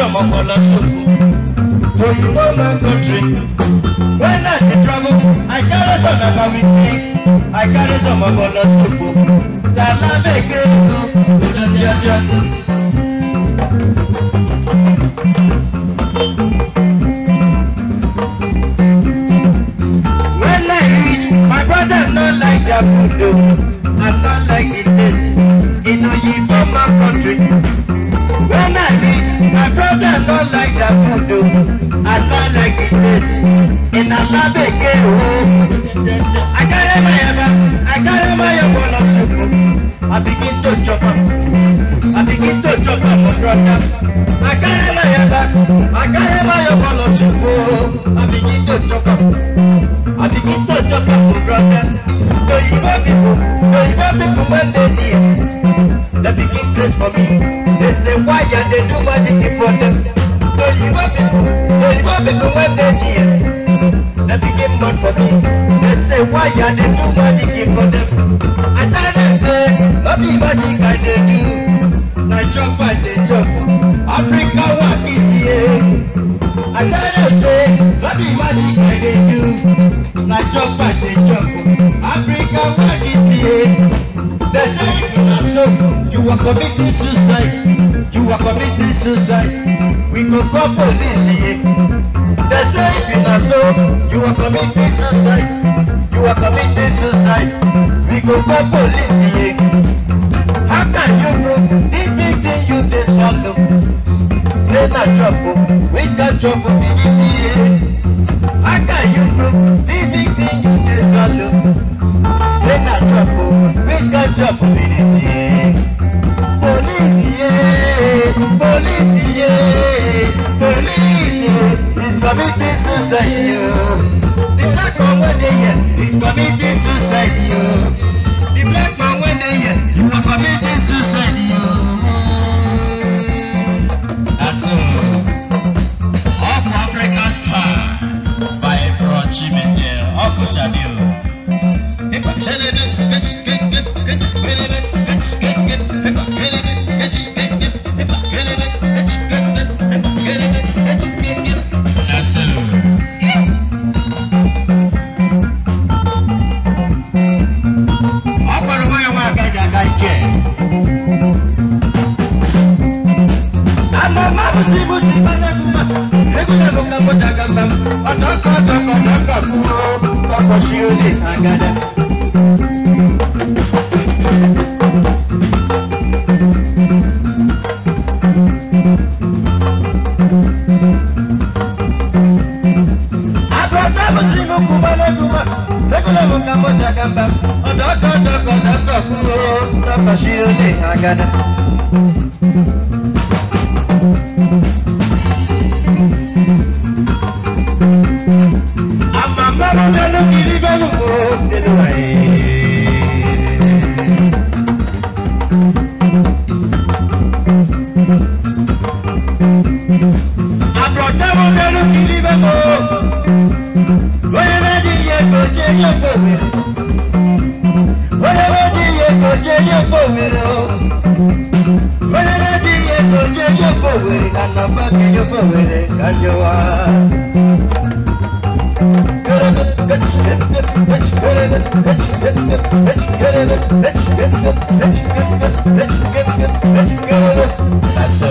from Angola Soko. To you know my country. When I travel, I carry some of my thing. I carry some of Angola Soko. Tala make it When I reach, my brother not like that food don't like that food o I don't like the place in Alabeke o. I carry my ever, I carry my yaba lọ sùkú I begin to chop am I begin to chop am for brother. I carry my yaba I carry my yaba lọ sùkú o I begin to chop am I begin to chop am for brother. Don't pipo oyinbo pipo wey dey there place for me. They say why you they do magic for them. So you want people, so you want people when they hear. They became God for me. They say why you they do magic for them. I tell them say, not be magic I they do. Now jump and they jump. Africa what is here. I tell them say, not be magic I they do. Now jump and they jump. Africa what is here. They say are committing suicide. You are committing suicide. We go call police here. They say if you not so, you are committing suicide. You are committing suicide. We go call police here. How can you know this big thing you dey swallow? Say na trouble, we can trouble be this here. How can you know this big thing you dey swallow? Say na trouble, we can trouble be this here. Police, yeah, police, police, yeah. It's committing suicide, yeah. The black man when they here is committing suicide, yeah. The black man when they That's all. Up African star by Bro Chimetier, Uncle Baba Shiode Agada. Amama Bano Kiribanu Kurodelwae. Abrodawo Bano Kiribanu. Loyana Diye Koje Yoko. pobre, la napa que yo pobre, calloa. That's so.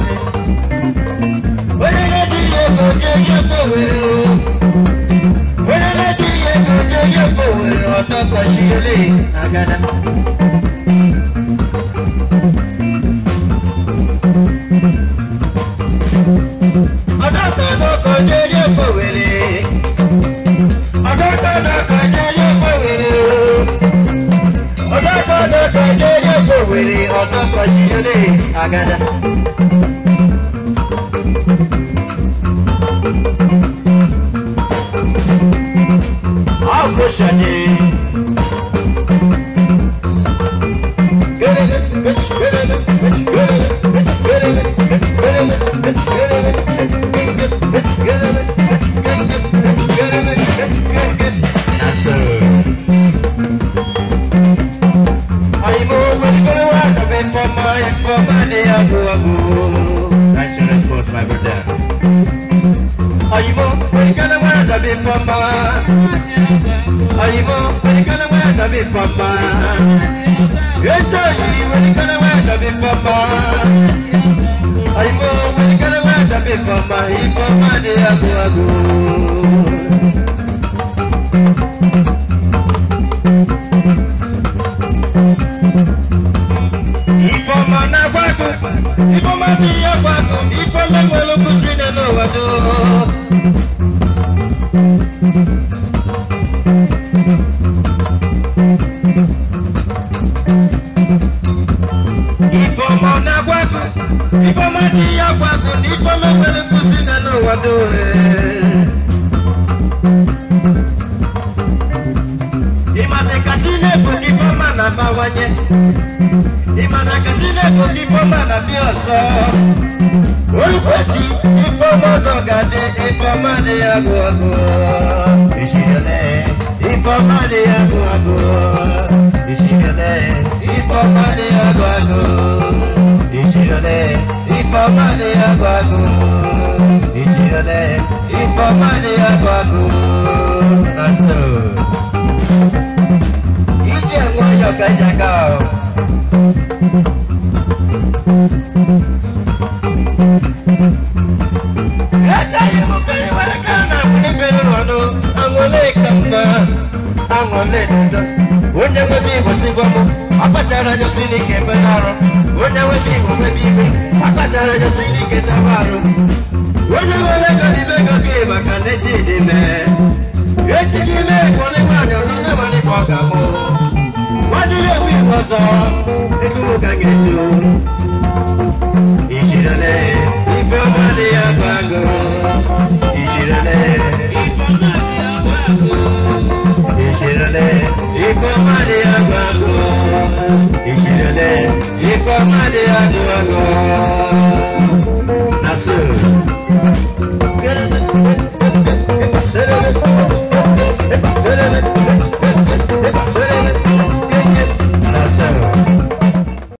tó dédé kò wèrè ọ̀tọ̀ kan sí ilé àgàdà. ọ̀pọ̀ ṣẹ̀dẹ̀. sabi papa ayibo welikana wa sabi papa etoyi welikana wa sabi papa ayibo welikana wa sabi papa ibo made agoago. na mana gwago, ibo madi agwago, ibo lengwe lokusi neno wado. Ipama pere kusina na wadore Imate katine po ipama na bawanye Imate katine po ipama na bioso Olukweti ipama zogade ipama de yago ago Ifọ̀mọ́ni agbádùn. Ìjì ọ̀lẹ́. Ifọ̀mọ́ni agbádùn. Nọ́ọ̀sì. Ìjì ẹ̀wọ̀n yọ̀gá ìjàgá o. Ẹ̀jẹ̀ yìí mú kí ìwádìí kan náà fún onye nwe m igbo tigbo m akpachara anya osi n'ike ebena arụ onye nwe m igbo nwebe ibe akpachara anya osi n'ike chaba arụ onye nwere ego n'ime ego gị maka na echi dị mee echi n'ime ego n'ime anya onye nwere ikpe ọ ga-amụ nwadịrị ewu igbo ọzọ ego m ga ga-eju ijirele ife ọma dị ya agụ agụ ijirele ìṣẹ̀lẹ̀ ikọ̀ máde àgọ́ àgọ́ ìṣẹ̀lẹ̀